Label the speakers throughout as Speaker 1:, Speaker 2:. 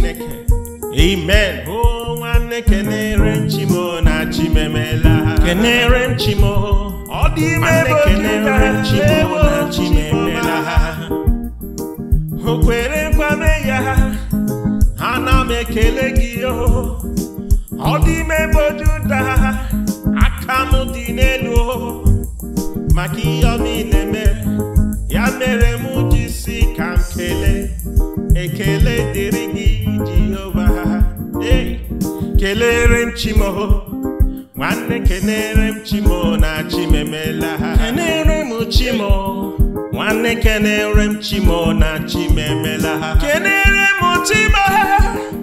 Speaker 1: chineke amen o nwanne kenere chimo na chimemela kenere chimo ọ dị ime kenere chimo na ha o ya m ekele gị o ọ dị ime bụ aka dị n'elu maka ihe ọ ya mere m ji si ka m ekele dịrị gị jehova ee kelere m chimo nwanne kelere m chimo na chimemela kelere m chimo nwanne kelere m chimo na chimemela ha kelere m chimo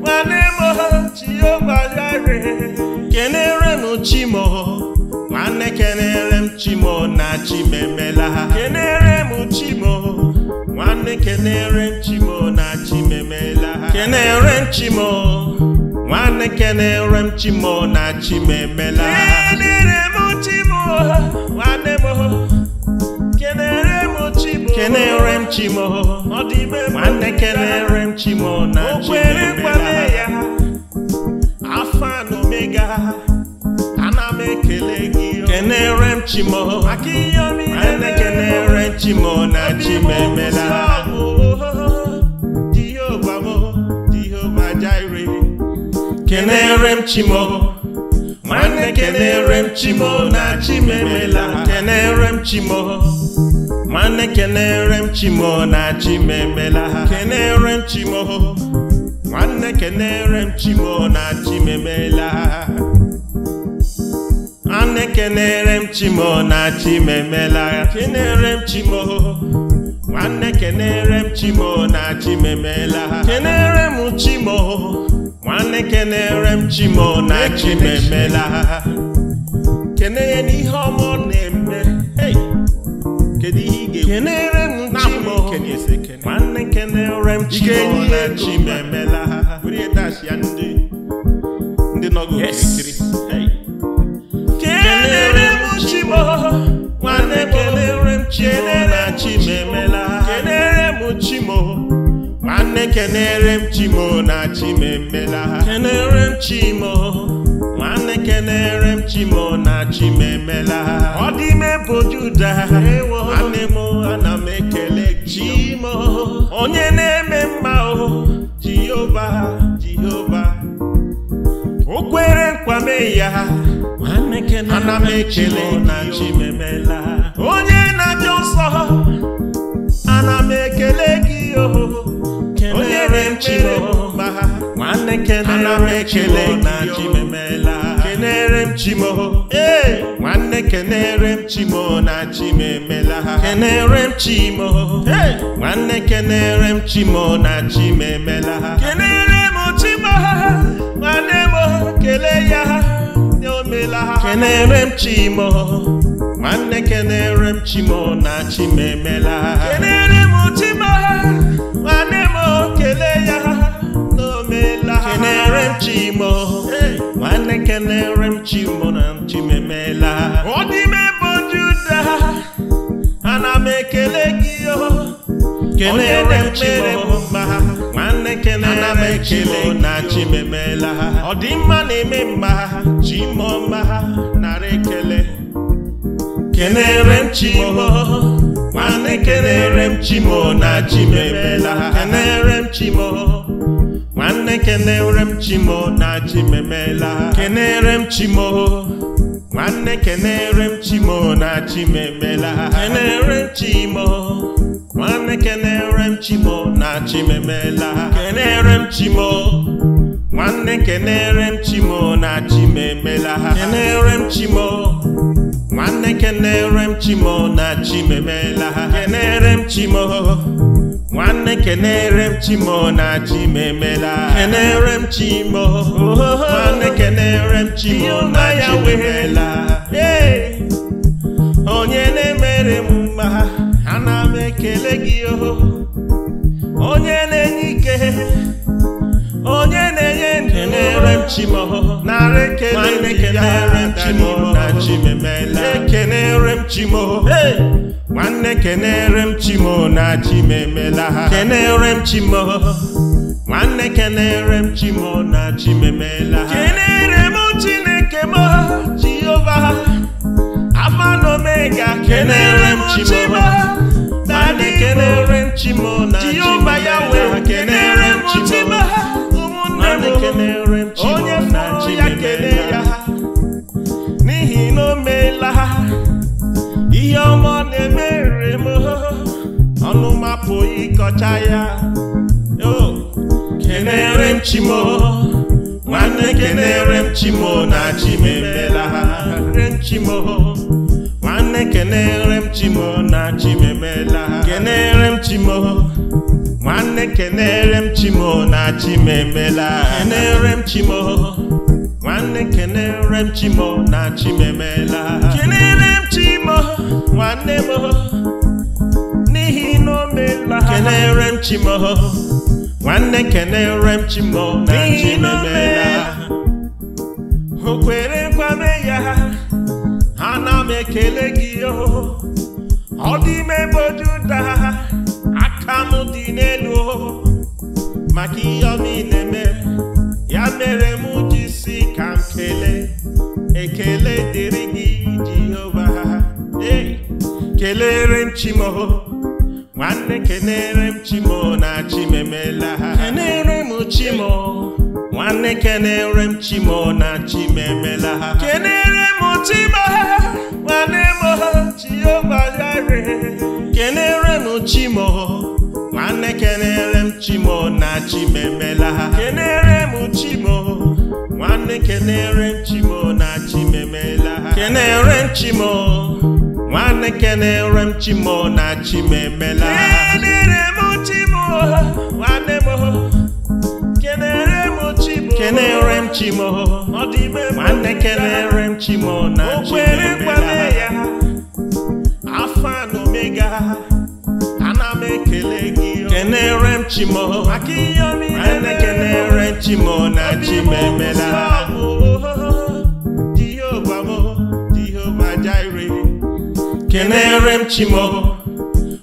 Speaker 1: nwanne m jehova yare
Speaker 2: kelere
Speaker 1: m chimo nwanne kelere m chimo na chimemela ha kelere m chimo nwanne kenere nchimo na chimemela kenere nchimo nwanne kenere nchimo na chimemela kenere m chimo nwanne m kenere m chimo kenere m ọ dị ime nwanne kenere m chimo na chimemela afa na omega ana m ekele gị ekenere m chimo ana ekenere chimo na chimemela kenere m chimo nwanne kenere m chimo na chimemela kenere m chimo nwanne kenere m chimo na chimemela kenere m chimo nwanne kenere m chimo na chimemela ana ekenere m chimo na chimemela kenere m chimo nwanne kenere m chimo na chimemela kenere m chimo nwanne kenere m chimo na chimemela kene ya n'ihe na-eme kedu ihe ị m chimo nwanne kenere m chimo na chimemela ndị nọgụ okirikiri kelere m chimo nwanne kelere m chimo na chimemela kenere m chimo nwanne kelere m chimo na chimemela m chimo nwanne m chimo na ọ dị mebụ juda nwanne m ana m ekele chimo onye na-eme mma o jehova jehova o kwere nkwa mee ya ana m ekele na chi memela onye na-abịa ụsọ ana m ekele gị oho onye re m chiri mba nwanne kene ana m ekele na chi memela kenere m chi chimo ee nwanne kenere m chi chimo na chi memela kenere m chi chimo nwanne kenere m chi chimo na chi memela kenere kele ya nye omela kenere m chimo nwanne kenere m chimo na chimemela kenere m chimo nwanne m kele ya n'omela kenere m chimo nwanne kenere m chimo na chimemela ọ dị m ebe juda ana m ekele gị o oh. kenere m chimo mma ekele ekele na chimemela ha ọdịmma na-eme mma ha chimo mma ha narị ekele kenere m chimo nwanne kenere m chimo na chimemela ha kenere m chimo nwanne kenere m chimo na chimemela ha kenere m chimo nwanne kenere m chimo na chimemela ha kenere m chimo nwanne kenere m chimo na chimemela kenere m chimo nwanne kenere m chimo na chimemela kenere m chimo nwanne kenere m chimo na chimemela kenere m chimo nwanne kenere m chimo na chimemela kenere m chimo nwanne kenere m chimo na chimemela ekele gị oho onye na-enye ike onye na-enye ndụ na-ere chimoho narị ekele kenere chimoho na chimemela ekenere m chimoho nwanne kenere m chimo na chimemela ha kenere m chimoho nwanne kenere m chimo na chimemela ha kenere m chineke m jehova afa na omega kenere m chimoho na-ekelere nchimo na jehova ya wee kenere nchimo ụmụnne m ekelere onye fụrụ ya kele ya n'ihi na o meela ha ihe ọma ọ na-emere m ọnụ mapụ ịkọcha ya kenere nchimo nwanne kenere nchimo na chimemela ha nchimo nwanne kenere m chimo na chimemela kenere m chimo nwanne kenere m chimo na chimemela kenere m chimo nwanne kenere m chimo na chimemela kenere m chimo nwanne m n'ihi na o meela kenere m chimo nwanne kenere m chimo na chimemela o na-ekele gị o ọ dị ime bụ Juda aka m dị n'elu maka ihe ọma ị na-eme ya mere m ji si ka m kelee ekele dịrị gị Jehova ee kelere m chimo nwanne kenere m chimo na chimemela kenere m chimo nwanne kenere m chimo na chimemela kenere m chimo nwanemo chiobagare kenere m chimo nwanne kenere m chimo na chimemela kenere m chimo nwanne kenere m chimo na chimemela kenere m chimo nwanne kenere m chimo na chimemela kenere m chimo kenere m chimo nwanne kenere m chimo na afa na omega ana m ekele gị kenere m chimo nwanne kenere m chimo na chimemela kenere m chimo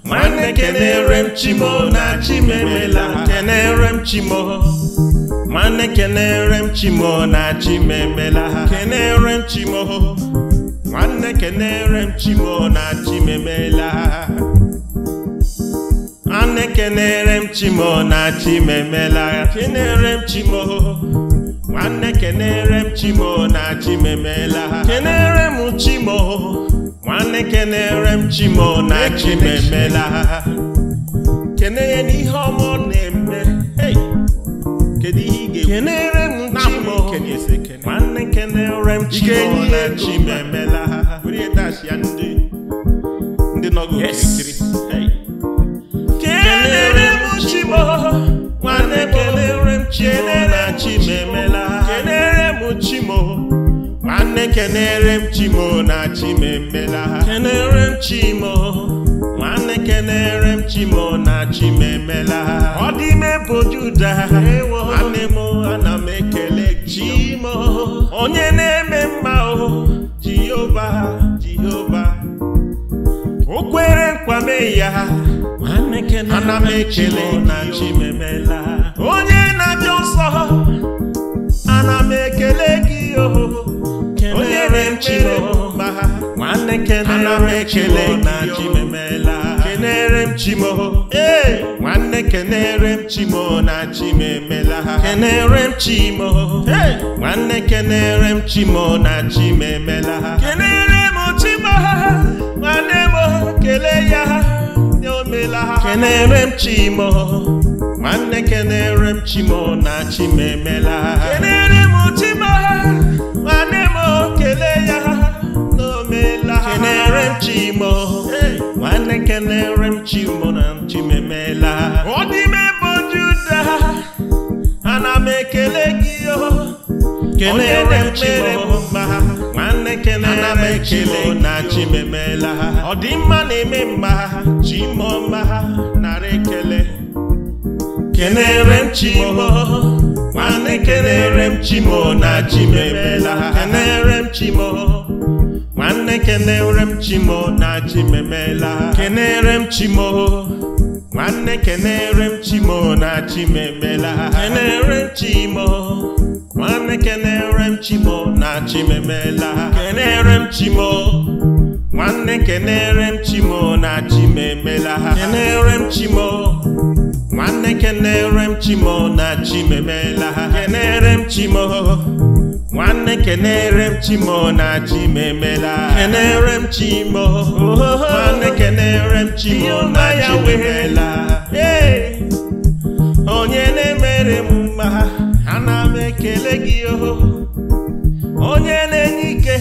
Speaker 1: nwanne kenere m chimo na chimemela kenere m chimo nwanne kenere m chimo na chimemela ha kenere m chimo nwanne kenere m chimo na chimemela ha nwanne kenere m chimo na chimemela ha kenere m chimo nwanne kenere m chimo na chimemela ha kenere m chimo nwanne kenere m chimo na chimemela ha kenere n'ihe ọma kenere m chimo nwanne kenere m chimo na chimo emela ha ya ndị ndị nọgo kenere m chimo nwanne kenere m chimo na chimo emela ha kenere m chimo nwanne kenere m chimo na chimo emela ha kenere m chimo na-ekenere m chimo na dị ime bụ juda nwanne m ana m ekele chimo onye na-eme mma o jehova jehova o kwere nkwame ya ana m ekele na chimemela onye na-abịa nsọ ana m ekele gị o onye na emere mba nwanne kenere m chimo na chimemela kenere m chimo nwanne kenere m chimo na chimemela ha kenere m chimo nwanne kenere m chimo na chimemela ha kenere m chimo ha nwanne m kelee ya ha omela ha kenere m chimo nwanne kenere m chimo na chimemela ha kenere m chimo ha nwanne m kelee ya ha na omela ha kenere m chimo nwanne kelere m chimo na chimemela ọ n'ime bụ juda ana m ekele gị kelere m chere m mma nwanne kelere m chimo na chimemela ọ dị na-eme mma chimo mma nara ekele kelere m chimo nwanne kelere m chimo na chimemela kelere m chimo nwanne kenere m chimo na chi chimemela kenere m chimo nwanne kenere m chimo na chi chimemela kenere m chimo nwanne kenere m chimo na chi chimemela kenere m chimo nwanne kenere m chimo na chi chimemela kenere m chimo nwanne kenere m chimo na chi chimemela kenere m chimo nwanne kenere m chimo na chim emela kenere m chimo nwanne kenere m chimo na chim emela onye na-emere m mma ana m ekele gị oho onye na-enye ike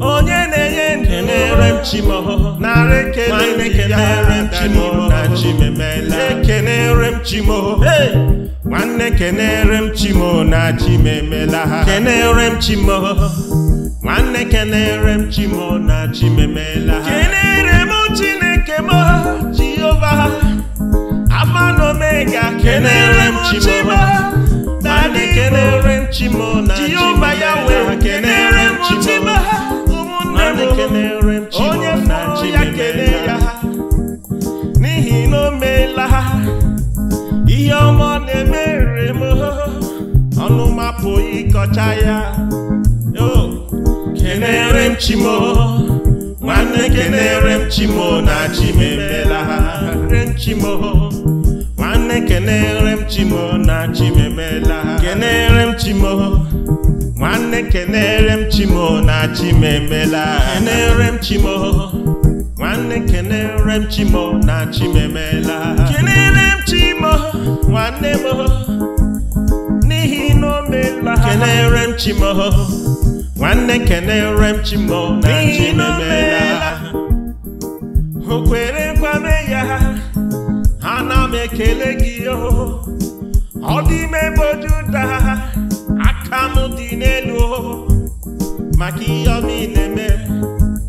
Speaker 1: onye na-enye ndụ na-ere chimo narị ekele m chimo na chimemela ekenere m chimo nwanne kenere m na chimemela ha kenere m chimo nwanne kenere m chimo na chimemela ha kenere m chineke m jehova na omega kenere m chimo na onye fọrọ ya kelee ya n'ihi na o meela ihe ọma na-emere m ọnụ mapụ ịkọcha ya kenere m chimo nwanne kenere m chimo na chim chimo nwanne kenere m chimo na chim emela kenere m chimo nwanne kenere m chimo na chimemela kenere m chimo nwanne kenere m chimo na chimemela kenere m chimo nwanne m n'ihi na meela kenere m chimo nwanne kenere m chimo na chimemela o kwere nkwame ya ana m ekele gị oh. ọ dị m bụ juda aka m dị n'elu maka ihe ọma ị na-eme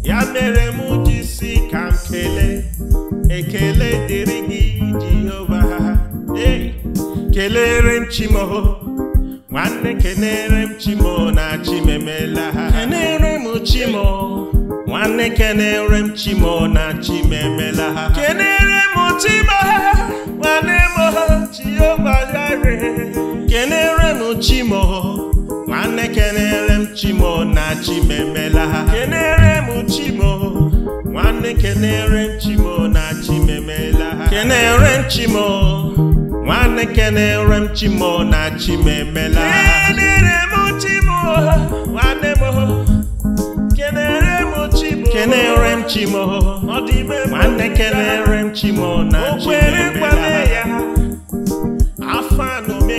Speaker 1: ya mere m ji si ka m ekele dịrị gị Jehova ee kelere m chimo nwanne kenere m chimo na chimemela kenere m chimo nwanne kenere m chimo na chimemela kenere m chimo nwanne m Jehova m chimo nwanne m chimo na chimemela ha m chimo
Speaker 2: nwanne m
Speaker 1: chimo na chimemela ha m chimo nwanne m chimo na chimemela ha m chimo nwanne m m kenerem chimo m chimo ọ dị ime nwanne m chimo na chimemela ha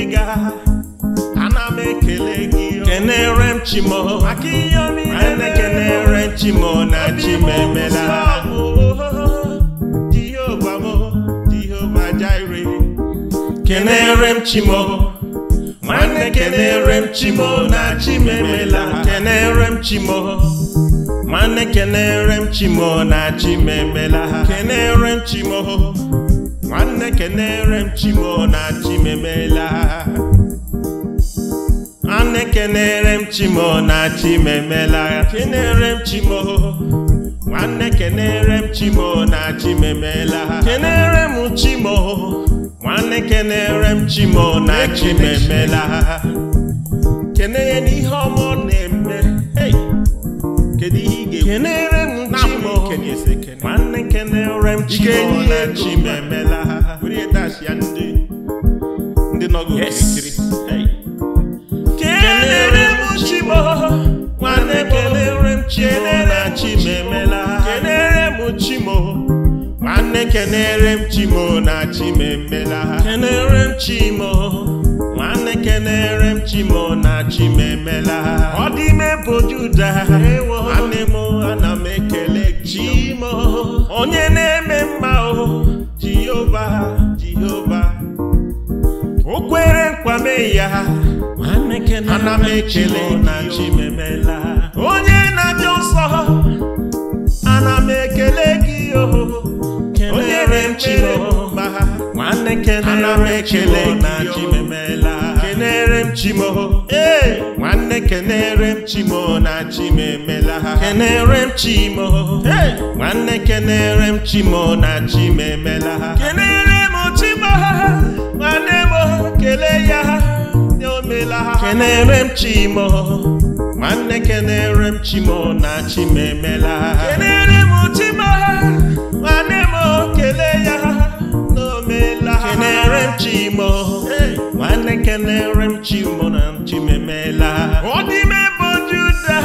Speaker 1: ga ana m ekele gị oh. kenere m chimo oh. maka ihe niile na-ekenere chimo na chimemela m Jehova kenere m chimo oh. nwanne kenere m chimo na chimemela kenere m chimo nwanne kenere m chimo na chimemela kenere m chimo nwanne kenere m chimo na chimemela nwanne kenere m chimo na chimemela kenere m chimo nwanne kenere m chimo na chimemela kenere m chimo nwanne kenere m chimo na chimemela n'ihe na-eme kedu ihe ị ikenere m chimona chimemela ha were ihe dash ya ndị ndị nọgo kirikiri kenere m chimo nwanne kenere m chimona chimemela ha kenere m chimo nwanne kenere m chimo na chimemela ha kenere m chimo kenere m chimo na chimemela ọ dị ime bụ juda nwanne m ana m ekele chimo onye na-eme mma o jehova jehova o kwere nkwame ya ana m ekele na chimemela onye na-abịa ụsọ ana m ekele gị onye na-emere mma nwanne kenere m chimo na chimemela m ee nwanne kenere m chimo na chimemela ha kenere m ee nwanne kenere m chimo na chimemela ha kenere m ha nwanne m kele ya ha omela ha kenere m nwanne kenere m chimo na chimemela ha kenere m nwanne m kele ya ha n'omela ha kenere m na-ekelere m chimụna chimemela ọ dịme bụ Juda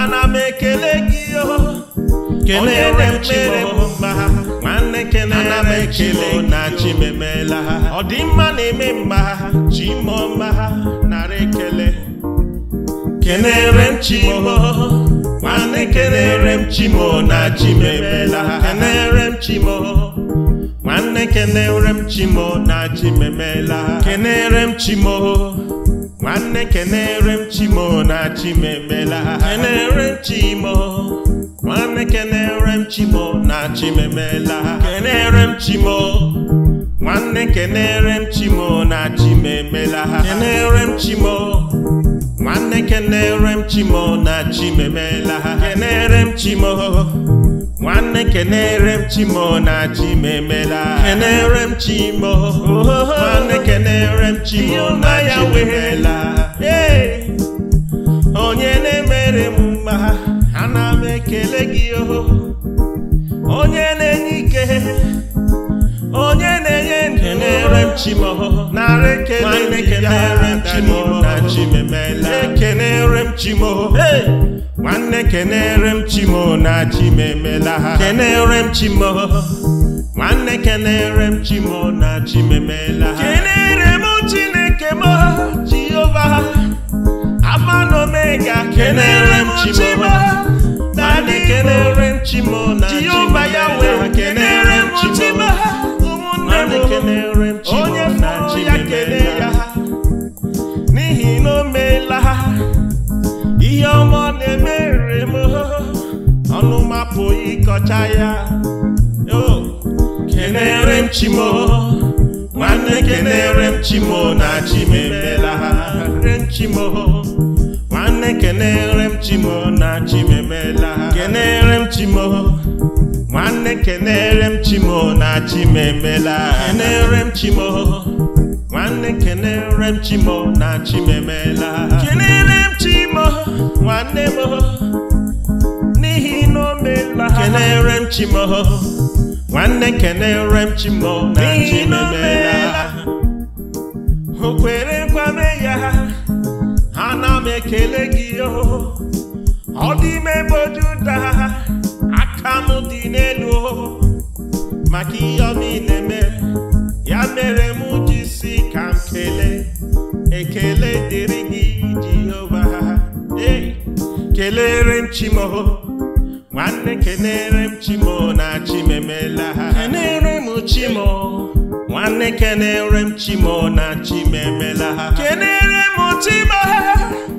Speaker 1: ana m ekele gị kelere m mere m mma nwanne kelere m ekele na chimemela ọ dị mma na-eme mma chi chimọma nara ekele kelere m chi chimo nwanne kelere m chi chimo na chimemela kelere m chi chimo nwanne kenere m chimo na chi chimemela kenere m chimo nwanne kenere m chimo na chi chimemela kenere m chimo nwanne kenere m chimo na chi chimemela kenere m chimo nwanne kenere m chimo na chi chimemela kenere m chimo nwanne kenere m chimo na chi chimemela kenere m chimo nwanne kenere m chimo na chim emela kenere m chimo nwanne kenere m chimo na ya wehela onye na-emere m mma ana m ekele gị oho onye na-enye ike onye na-enye ndụ chimo narị ekenere m chimo na chimemela ekenere m chimo nwanne kenere m chimo na chimemela ha kenere m chimo nwanne kenere m chimo na chimemela ha kenere m chineke m jehova afa na omega kenere m chimo na kenere m chimo na chimemela ha kenere m chimo onye mụrụ ya kele ya n'ihi na o meela ihe ọma ọ na-emere m ọnụ mapụ ịkọcha ya kenere m chimo nwanne kenere m chimo na chim emela chimo nwanne kenere m chimo na chim emela kenere m chimo nwanne kenere m chimo na chimemela kenere m chimo nwanne kenere m chimo na chimemela kenere m chimo nwanne m n'ihi na o meela kenere m chimo nwanne kenere m chimo na chimemela o kwere nkwame ya ana m ekele gị oh. ọ dị ime bụ juda maka ihe ọ ị na-eme ya mere m ji si ka m kelee ekele dịrị gị Jehova ee kelere m Chimo nwanne kelere m Chimo na chimemela kenere m Chimo nwanne kenere m Chimo na chimemela ha kenere m Chimo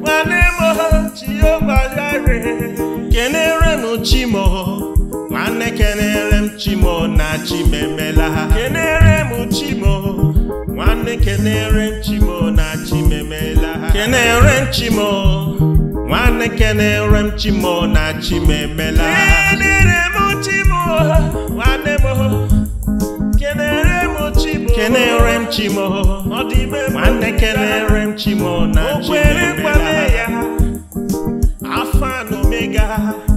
Speaker 1: nwanne m Jehova kenere m Chimo nwanne kenere m chimo na chimemela ha kenere m chimo nwanne kenere m chimo na chimemela ha kenere m chimo nwanne kenere m chimo na chimemela ha kenere m chimo nwanne m kenere m chimo kenere m chimo ọ dị ime nwanne kenere m chimo na chimemela ha afa na omega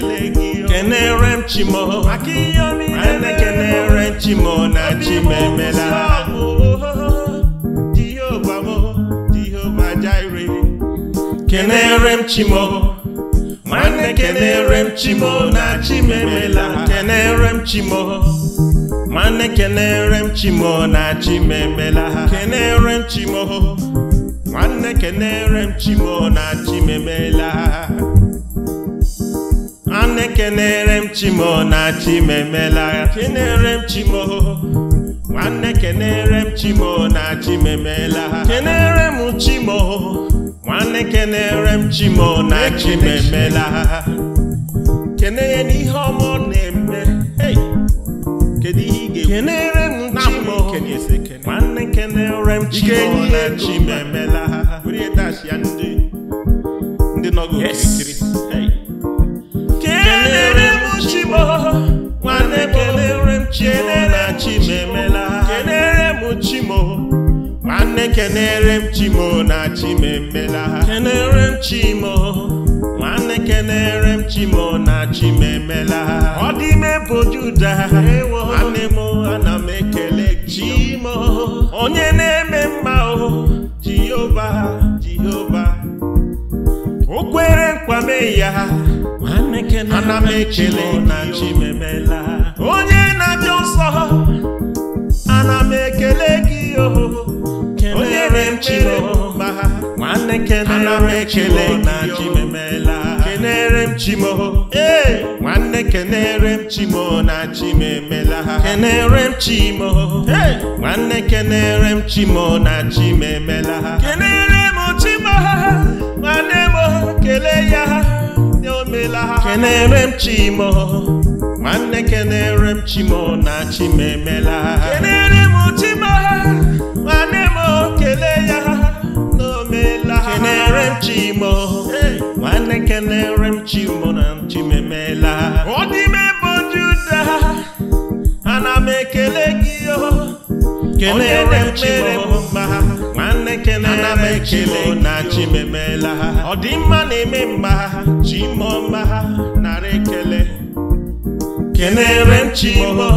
Speaker 1: kenere m chimo kenere chimo na chimemela kenere m chimo nwanne kenere m chimo na chimemela kenere nwanne kenere m chimo na chimemela kenere m chimo nwanne kenere m chimo na chimemela kenere m chimo nwanne kenere m chimo na chimemela n'ihe na-eme kedu ihe ị ga m chimo nwanne kenere m chimo na chimemela ndị nọgụ okirikiri kelere m chimo nwanne kelere m chimo na chimemela kelere m chimo nwanne kelere m chimo na chimemela kelere m chimo nwanne kelere m chimo na chimemela ọ dị ime bụ juda nwanne m ana m ekele chimo onye na-eme mma o jehova jehova kwere nkwame ya ana m ekele na chimemela onye na-abịa ụsọ ana m ekele gị onye na-emere mba ana m ekele na chimemela kenere m chimo ee nwanne kenere m chimo na chimemela kenere m chimo nwanne kenere m chimo na chimemela kenere kelee ya omela ha kenere m chimo nwanne kenere m chimo na chimemela kenere m chimo nwanne m kelee ya ha kenere m chimo nwanne kenere m chimo na chimemela ọ dị juda ana m ekele onye remere m mma ha nwanne kenere m ekele na chimemela ha ọdịmma na-eme mma ha chimo mma ha nara ekele kenere m chimo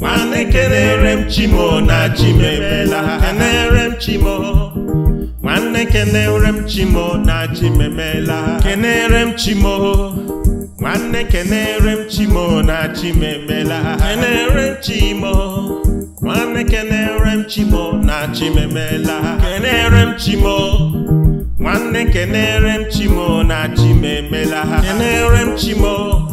Speaker 1: nwanne kenere m chimo na chimemela ha kenere m chimo nwanne kenere m chimo na chimemela ha kenere m chimo nwanne kenere m chimo na chimemela ha kenere m chimo nwanne kenere m chimo na chimemela kenere m chimo nwanne kenere m chimo na chimemela kenere m chimo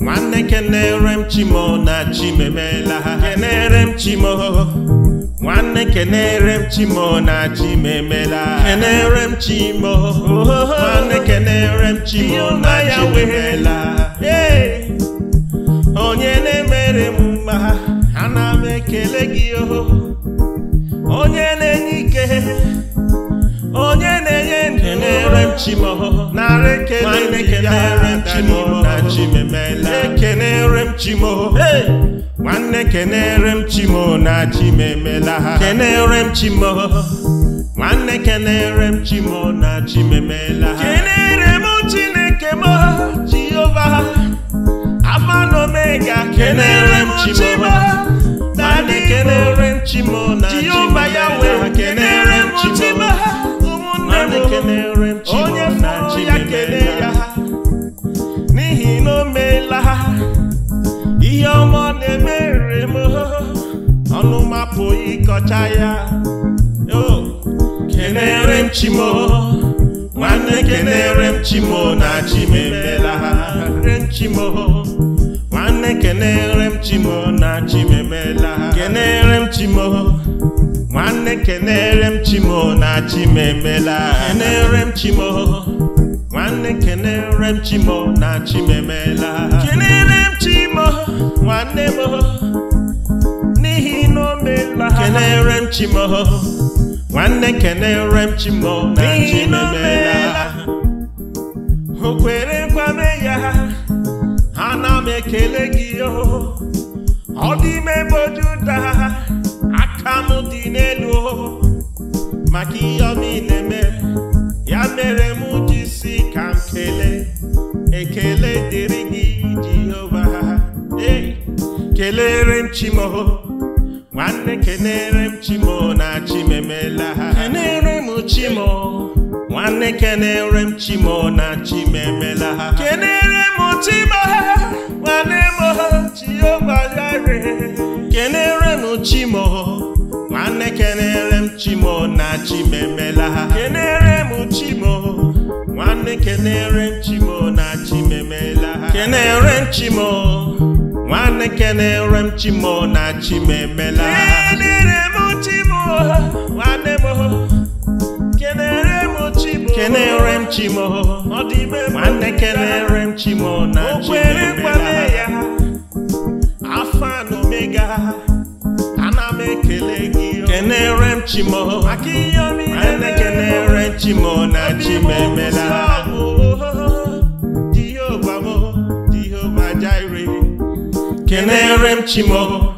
Speaker 1: nwanne kenere m chimo na chimemela kenere m chimo nwanne kenere m chimo na chimemela kenere m chimo nwanne kenere m chimo na chimemela ekele gị o oh. onye na-enye ike onye na-enye ndụ na-ere m chimo oh. narị ekele gị oh. na chimemela ekenere m chimo nwanne kenere m chimo na chimemela ha kenere m chimo nwanne kenere m chimo na chimemela ha kenere m chineke m jehova afa na omega kenere m chimo kenere chimona Jehova ya wee kenere chimona ụmụnne m onye fọrọ ya kele ya n'ihi na o meela ha ihe ọma na-emere m ọnụ mapụ ịkọcha ya kenere m chimo nwanne kenere m chimo na chimemela ha chimo kenere m chimo na chimemela kenere m chimo nwanne kenere m chimo na chimemela kenere m chimo nwanne kenere m chimo na chimemela kenere m chimo nwanne m n'ihi na o meela kenere m chimo nwanne kenere m chimo na chimemela o kwere kwame ya ana m ekele gị ọ dị ime ebe Juda aka m dị n'elu o maka ihe ọ niile mere ya mere m ji si ka m kelee ekele dịrị gị Jehova ee kelere m chimo nwanne kenere m chimo na chimemela kenere m chimo nwanne kenere m chimo na chimemela kenere m chimo n'ime kenere m chimo nwanne kenere m chimo na chimemela kenere m chimo nwanne kenere m chimo na chimemela kenere m chimo nwanne kenere m chimo na chimemela kenere m chimo kenere m chimo nwanne kenere m chimo na ya, afọ omega ana m ekele gị kenere m chimo nwanne kenere m chimo na chimemela kenere m chimo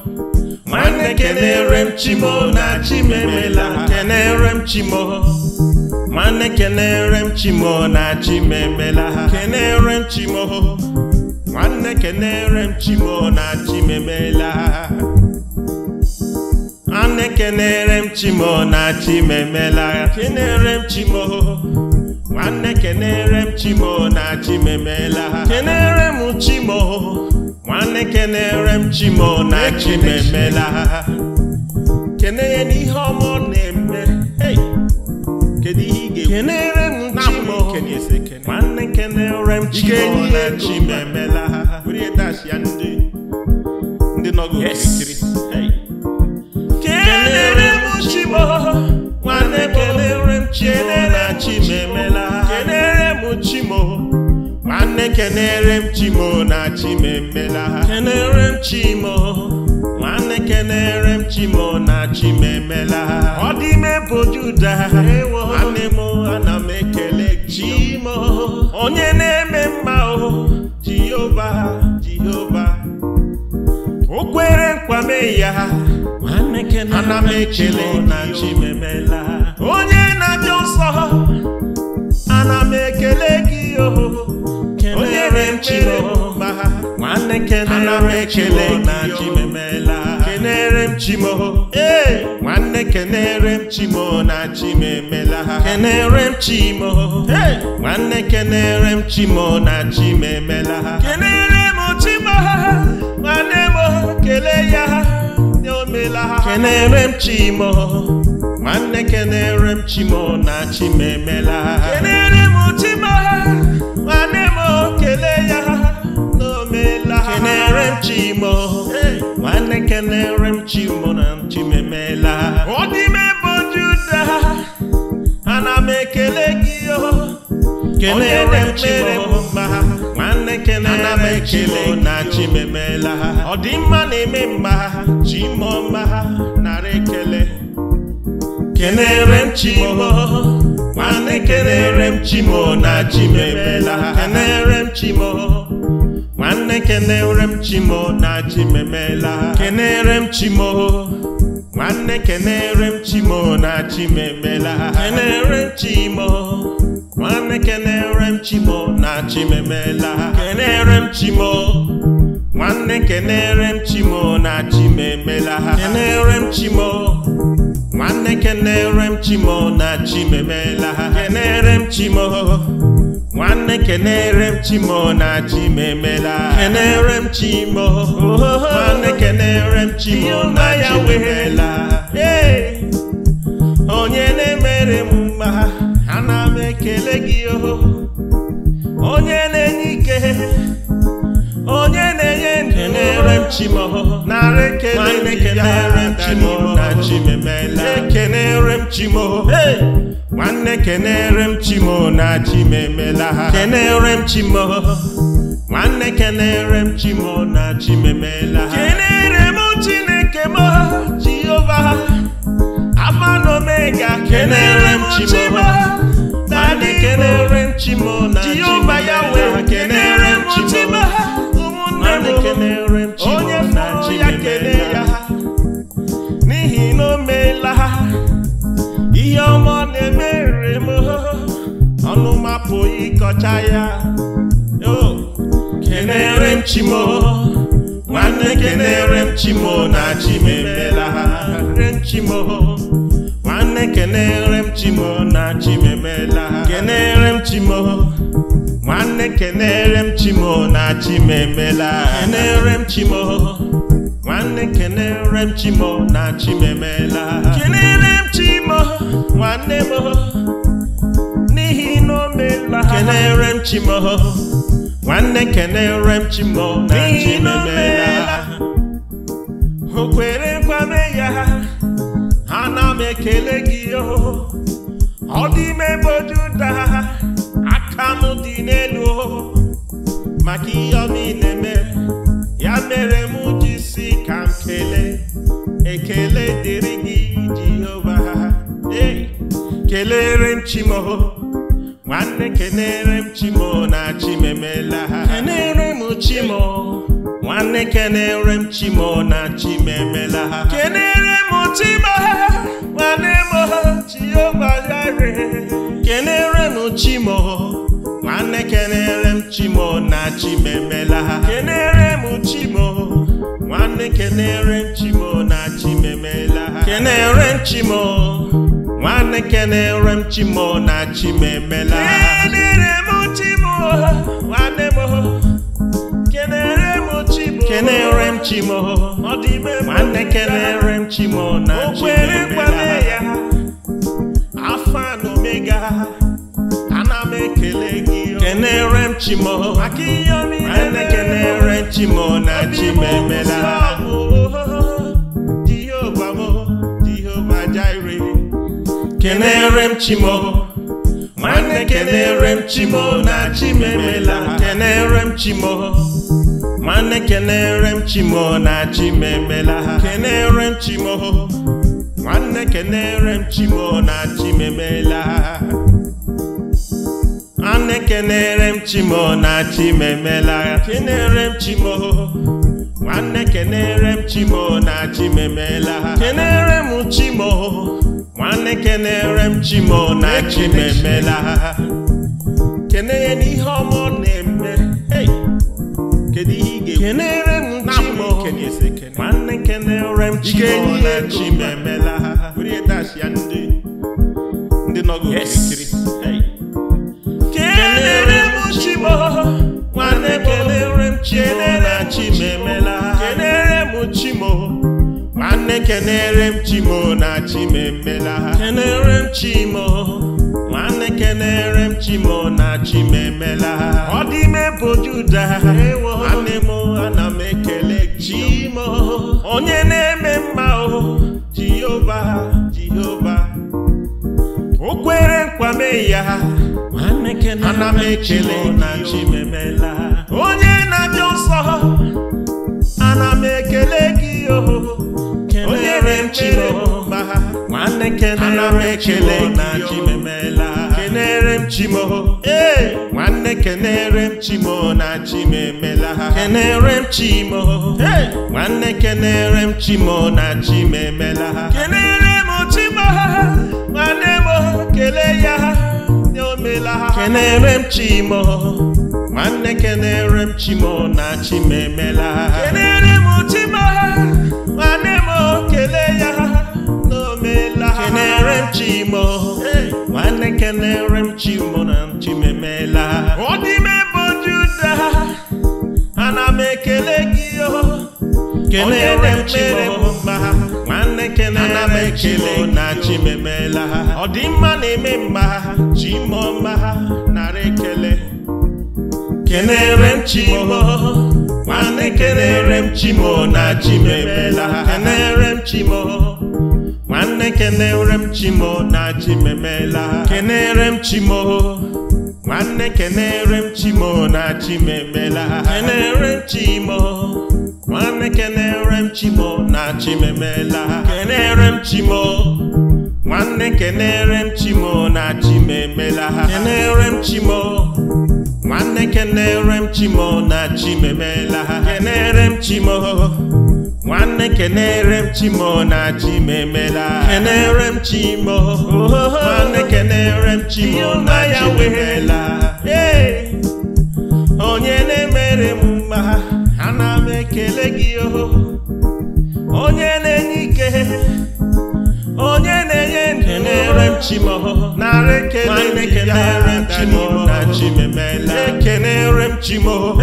Speaker 1: nwanne kenere m chimo na chimemela kenere m chimo nwanne kenere m chimo na chima ha kenere m chimo nwanne kenere m chimo na chima ha nwanne kenere m chimo na chima kenere m chimo nwanne kenere m chimo na chima ha kenere m chimo nwanne kenere m chimo na chima ha kene ya n'ihe na-eme kedu ihe kenere m chimo, nwanne kenere m chimo na chi emela ha ya ndị ndị nọgo kirikiri kenere m chimo. nwanne kenere m chimo na chi emela ha kenere m chimo. nwanne kenere m chimo na chimemela ha kenere m chimo kenere m chimo na chimemela ọdịme bụ juda nwanne m ana m ekele chimo onye na-eme mma o jehova jehova o kwere nkwame ya ana m ekele na chimemela onye na-abịa nsọ ana m ekele gị o onye na-eme chimo nwanne kenere m ekele na chimemela kenere m chimo ee nwanne kenere m chimo na chimemela kenere m chimo ee nwanne kenere m chimo na chimemela kenere m chimo nwanne m kele ya omela kenere m chimo nwanne kenere m chimo na chimemela kenere m chimo nwanne kelere m chimo na chimemela ọ dị juda ana m ekele gị kelere m mere m mma nwanne kelere m chimo na chimemela ọ dị mma na-eme mma chimo mma narị ekele kelere m chimo nwanne kelere m chimo na chimemela kelere m chimo na nne kenere m chimo na ji kenere m chimo nwanne kenere m chimo na ji memela kenere m chimo nwanne kenere m chimo na ji memela kenere m chimo nwanne kenere m chimo na ji memela kenere m chimo nwanne kenere m chimo na ji memela kenere m chimo nwanne kenere m chimo na chi m emela kenere m chimo nwanne kenere m chimo na ya wehela onye na-emere m mma ana m ekele gị oho onye na-enye ike ekenere m chimo narị ekenere m chimo na chimemela ekenere m chimo nwanne kenere m chimo na chimemela ha kenere m chimo nwanne kenere m chimo na chimemela ha kenere m chineke m jehova afa na omega kenere m chimo na kenere m chimo na chimemela ha kenere m chimo onye fọrọ ya kelee ya n'ihi na o meela ihe ọma ọ na-emere m ọnụ mapụghị ịkọcha ya kenere m chimo nwanne kenere m chimo na chim emela re m chimo nwanne kenere m chimo na chim emela kenere m chimo nwanne kenere m chimo na chimemela kenere m chimo nwanne kenere m chimo na chimemela kenere m chimo nwanne m n'ihi na o ha. kenere m chimo nwanne kenere m chimo na chimemela Okwere kwere kwame ya ana m ekele gị o oh. ọ dị ime ebe ojuda aka m dị n'elu maka ihe ọ niile mere ya mere m ji si ka m kelee ekele dịrị gị Jehova ee kelere m Chimo nwanne kenere m Chimo na chimemela kenere m Chimo nwanne kenere m Chimo na chimemela kenere m Chimo nwanne m kenere m chimo nwanne kenere m chimo na chimemela kenere m chimo nwanne kenere m chimo na chimemela
Speaker 2: kenere m
Speaker 1: chimo nwanne kenere m chimo na chimemela kenere m chimo nwanne m kenere m chimo nwanne kenere m chimo na ya, afọ omega ana m ekele gị kenere m chimo nwanne kenere m chimo na chimemela Jehova m Jehova Jire kenere m chimo nwanne kenere m chimo na chimemela kenere m chimo nwanne kenere m chimo na chimemela ha kenere m chimo nwanne kenere m chimo na chimemela ha nwanne kenere m chimo na chimemela memela. kenere m chimo nwanne kenere m chimo na chimemela ha kenere m chimo nwanne kenere m chimo na chimemela ha kenere ya n'ihe kedu ihe ị ga-ekwu na-abụghị chi ha were nwanne m na chi ha kenere m kenere m chimo na chimemela ọdịme bụ juda nwanne m ana m ekele chimo onye na-eme mma o jehova jehova o kwere nkwame ya ana m ekele na chimemela onye na-abịa nsọ ana m ekele gị o onye na mma nwanne kenere m ekele na chimemela kenere m chimo nwanne kenere m chimo na chimemela ha kenere m chimo nwanne kenere m chimo na chimemela ha kenere m chimo nwanne m kele ya ha omela ha kenere m chimo nwanne kenere m chimo na chimemela ha kenere m chimo kenere m chimo nwanne kenere m chimo na chimemela ọ dị m ebe juda ana m ekele gị kenere m chimo mma nwanne kenere m chimo na chimemela ọ dị mma na-eme mma chimo mma narị ekele kenere m chimo nwanne kenere m chimo na chimemela kenere m chimo nwanne kenere m chimo na ji memela kenere m chimo nwanne kenere m chimo na ji kenere m chimo nwanne kenere m chimo na ji kenere m chimo nwanne kenere m chimo na ji kenere m chimo nwanne kenere m chimo na ji kenere m chimo nwanne kenere m chimo na chi m emela kenere m chimo nwanne kenere m chimo na ya onye na-emere m mma ana m ekele gị oho onye na-enye ike onye na-enye ndụ kenere m chimo narị ekele kenere m chimo na chi m chimo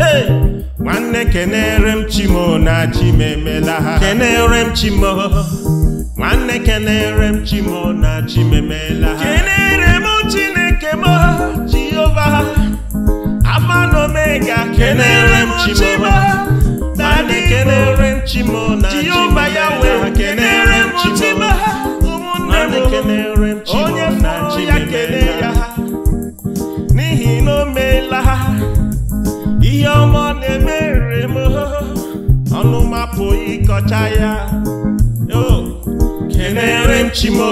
Speaker 1: nwanne kenere m chimo na ji m ha kenere m chimo nwanne kenere m chimo na ji m emela ha kenere m chineke m jehova amanụ omega kenere m chimo nwanne kenere m chimo na ji m ya wee kenere m chimo ụmụnne m onye fọrọ ya kele ya n'ihi na o meela ha ihe ọma na-emere m ọnụ mapụ ịkọcha ya kenere m chimo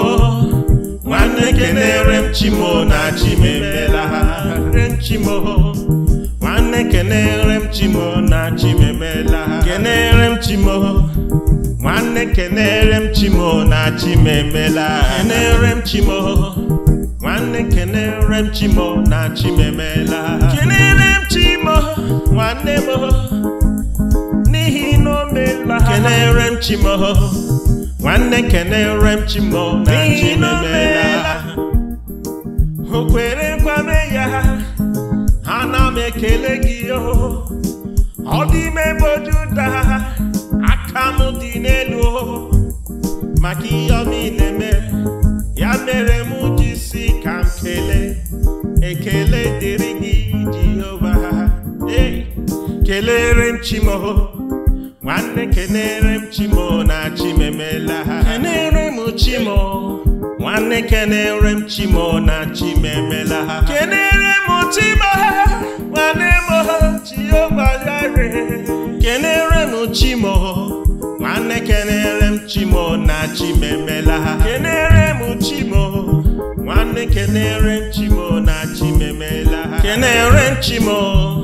Speaker 1: nwanne kenere na chimemela chimo nwanne kenere m chimo na chimemela kenere m nwanne m n'ihi na o meela kenere m chi ha nwanne kenere m chi m n'ihi na o meela o nkwame ya na m ekele gị o oh. ọ dị ime bụ Juda nwanne kenere m chimo na chimemela kenere m chimo nwanne kenere m chimo na chimemela ha kenere m chimo nwanne m chiogbayare kenere m chimo nwanne kenere m chimo na chimemela ha kenere m chimo nwanne kenere m chimo na chimemela ha kenere m chimo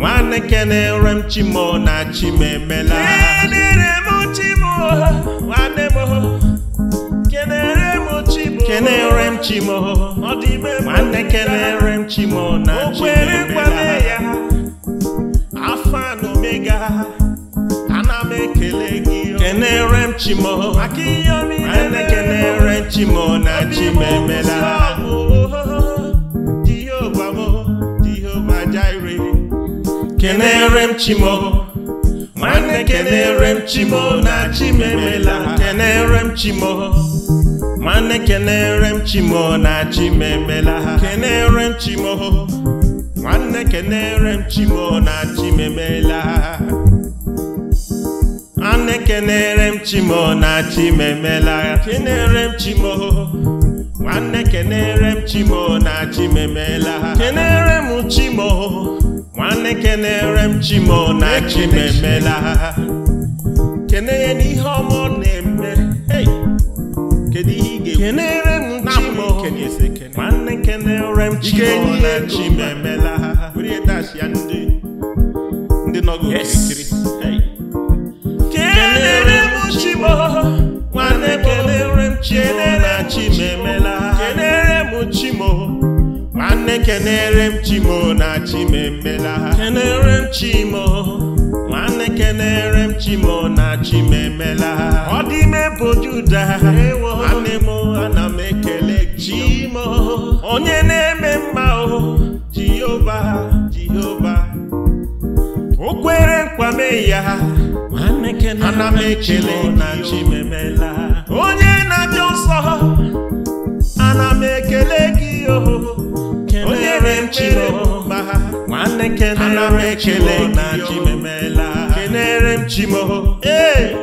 Speaker 1: nwanne kenere m chimo na chimemela kenere m chimo nwanne kenere m chimo m chimo ọ dị m chimo na chimemela Afọ ana m ekele gị kenere m chimo maka ihe niile kenere m chimo na chimemela kenere m chimo nwanne kenere m chimo na chimemela kenere m chimo nwanne kenere m chimo na chimemela kenere m chimo nwanne kenere m chimo na chimemela nwanne kenere m chimo na chimemela kenere m chimo nwanne kenere m chimo na chimemela kenere m chimo nwanne kenere m mọ na chimemela kene ya n'ihe ọma ọ na-eme kedu ihe ị ga-ekwu kenere m chimo nwanne kenere m chimo na chimemela were dash ya ndị ndị nọgụ okirikiri
Speaker 2: kenere
Speaker 1: m nwanne kenere m nwanne kenere m chimo na chimemela kenere m chimo nwanne kenere m chimo na chimemela ọ dị ime bụ juda nwanne m ana m ekele chimo onye na-eme mma o jehova jehova o kwere nkwame ya ana m ekele na chimemela onye na-abịa nsọ ana m ekele gị oho ekele m chimo nwanne ana na ekele na chimemela kenere m chimo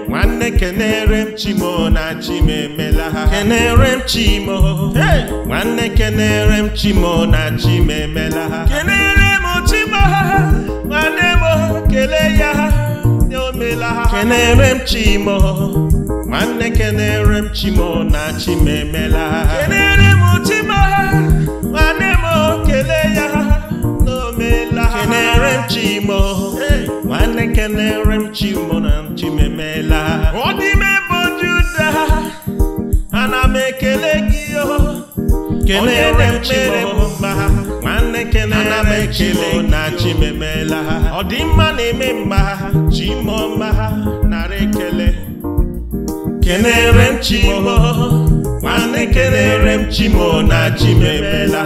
Speaker 1: nwanne kenere m chimo na chimemela kenere m chimo nwanne kenere m chimo na ha. kenere m chimo nwanne m kele ya omela kenere m chimo nwanne kenere m chimo na chimemela kenere m chimo chimo nwanne kelere m chimo na chimemela ọ bụ juda ana m ekele gị kelere nwanne kelere m na chimemela ọ na-eme mma chimo mma nara ekele kelere na chimemela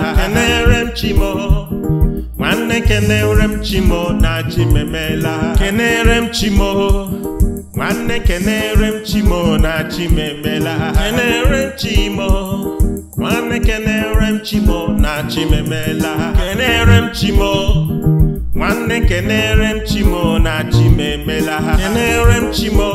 Speaker 1: nwanne kenere m chimo na ji memela kenere m chimo nwanne kenere m chimo na ji memela kenere m chimo nwanne kenere m chimo na ji memela kenere m chimo nwanne kenere m chimo na ji memela kenere m chimo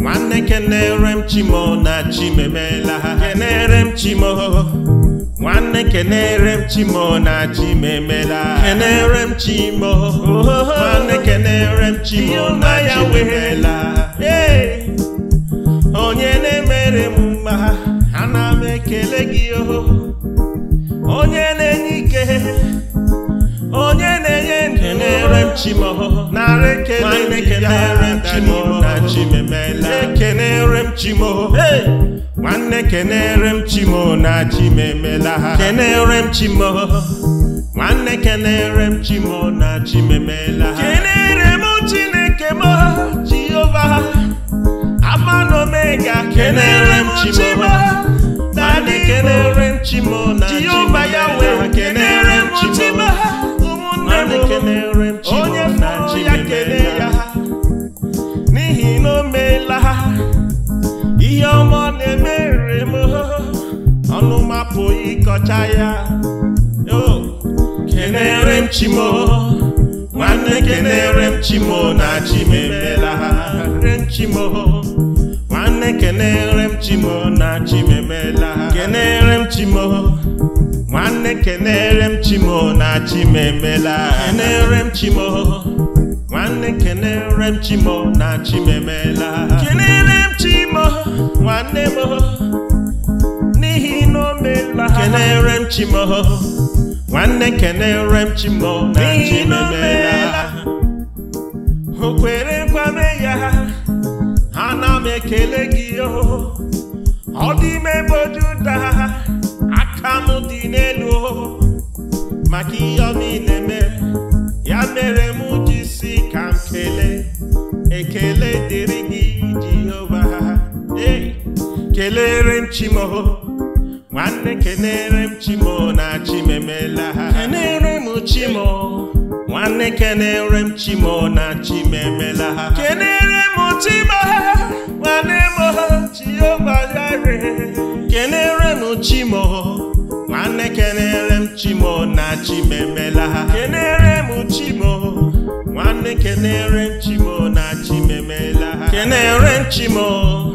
Speaker 1: nwanne kenere m chimo na ji memela kenere m chimo nwanne kenere m chimo na chimemela kenere m chimo nwanne kenere m chimo na chimemela onye na-emere m mma ana m ekele gị oh. onye na-enye ike chimo narị ekenere m chimo na chimemela ekenere m chimo nwanne kenere m chimo na chimemela ha kenere m chimo nwanne kenere m chimo na chimemela ha kenere m chineke m jehova ama na omega kenere m chimo na kenere m chimo na jehova ya wee kenere m chimo mmadụ kelere m onye mụrụ ya kele ya n'ihi na o meela ihe ọma na-emere m ọnụ mapụghị ịkọcha ya kenere m chimo nwanne kenere m chimo na chimemela chimo nwanne kenere m chimo na chimemela kenere m chimo nwanne kenere m chimo na chima emela kenere m chimo nwanne kenere m chimo na chima emela kenere m chimo nwanne m n'ihi na o meela kenere m chimo nwanne kenere m chimo na chima emela o kwere kwame ya ana m ekele gị o oh. ọ dị m ebe ojuda n'elu maka ihe ọ niile mere ya mere m ji si ka m kele ekele dịrị gị Jehova ee kelere m chimo nwanne kelere m chimo na chimemela ha kelere m chimo nwanne kelere m chimo na chimemela ha kelere m chimo nwanne m Jehova kelere m chimo nwanne kenere m chimo na chimemela ha kenere m chimo nwanne kenere m chimo na chimemela ha kenere m chimo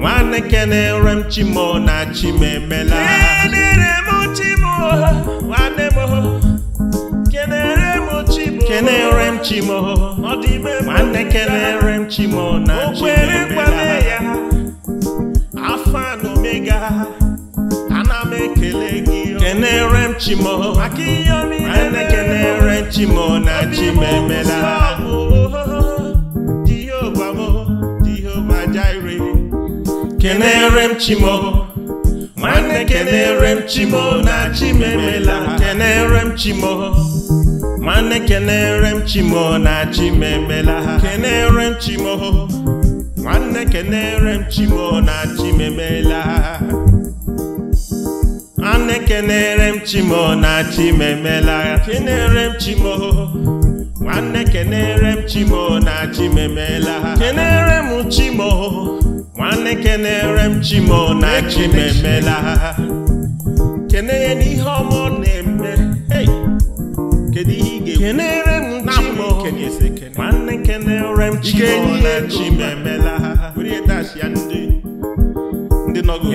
Speaker 1: nwanne kenere m chimo na chimemela ha kenere m chimo nwanne m kenere m chimo kenere m chimo ọ dị ime m nwanne kenere m chimo na chimemela ha afa na omega Oh. kenere m chimo oh. chimo oh, kenere m nwanne kenere chimo na chimemela kenere m chimo nwanne kenere m na chimemela kenere nne keneere m chimo na chimemela kenere m chimo nwanne kenere m chimo na chimemela m chimo m chimo na chimemela kene ya ọ na-eme kedu ihe ị ga-ekwu m chimo na kenere m chimo na chimemela ndị nọgụ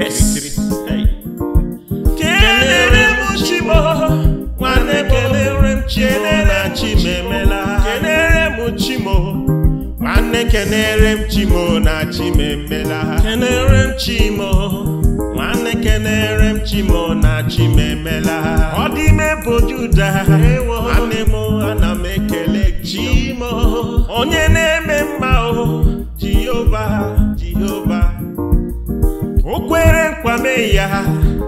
Speaker 1: kelere m chimo nwanne kelere m chime mela. kelere m chimo nwanne kelere m chimo na chime mela. kelere m chimo nwanne kelere m chimo na chime mela. ọ dị ime bụ juda nwanne m ana m ekele chimo onye na-eme mma o jehova jehova o kwere nkwame ya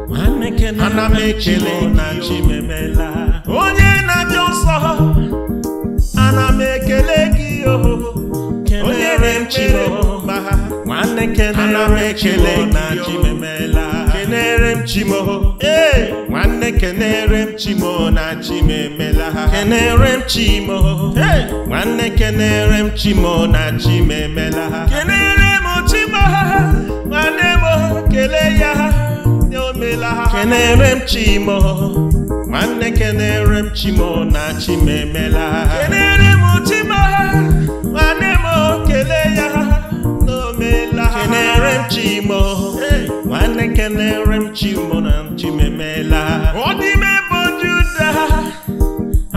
Speaker 1: ana m ekele na chi memela onye na-abịa nsọ ana m ekele gị onye na-echere mba ana m ekele na chi memela kenere m chimo ee nwanne kenere m chimo na chi memela kenere m chimo nwanne kenere m chimo na chi memela kenere m chimo nwanne m kele ya ha kenere m chimo nwanne kenere m chimo na chimemela kenere m chimo nwanne m kele ya n'omela kenere m chimo nwanne kenere m chimo na chimemela ọ dịme bụ juda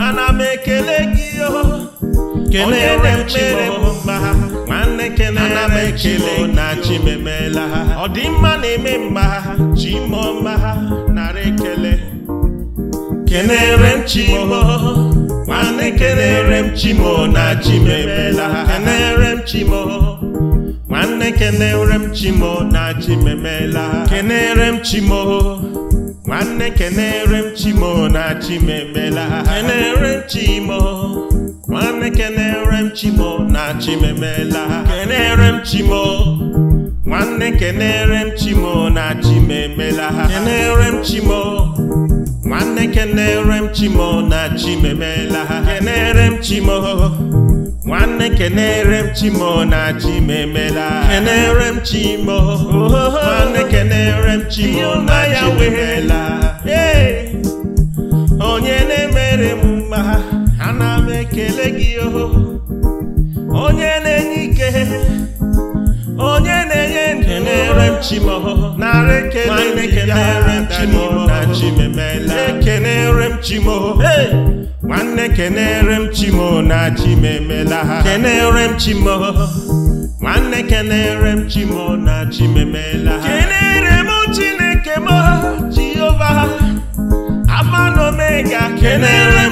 Speaker 1: ana m ekele gị o oh. kenere m chimo nwanne kelere m oh, na chimemela ha ọdịmma na-eme mma ha chimọma ha narị ekele kenere m chimo oh. nwanne kenere m chimo oh, na chimemela ha kenere m chimo nwanne kenere m chimo na chimemela ha kenere m chimo nwanne kenere m chimo na chimemela ha m chimo nwanne kenere m chimo na chimemela kenere m chimo nwanne kenere m chimo na chimemela kenere m chimo nwanne kenere m chimo na chimemela kenere m chimo nwanne kenere m chimo na chimemela kenere m chimo nwanne kenere m chimo na chimemela na-ekele gị oho onye na-enye ike onye na-enye ndụ na-ere m chimo nara ekele na chimemela ekenere m nwanne kenere na chimemela ha kenere m nwanne kenere m na chimemela ha kenere m chineke m jehova amanome kenere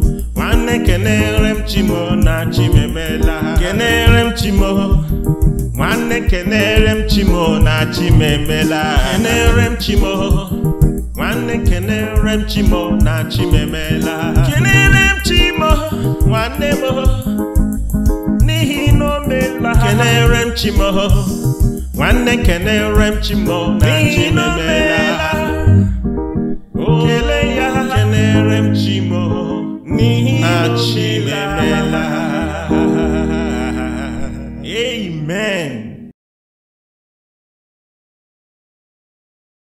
Speaker 1: ka kenere m chimo na chimemela kenere m chimo nwanne kenere m chimo na chimemela kenere n'ihi na o kenere m chimo nwanne kenere Amen.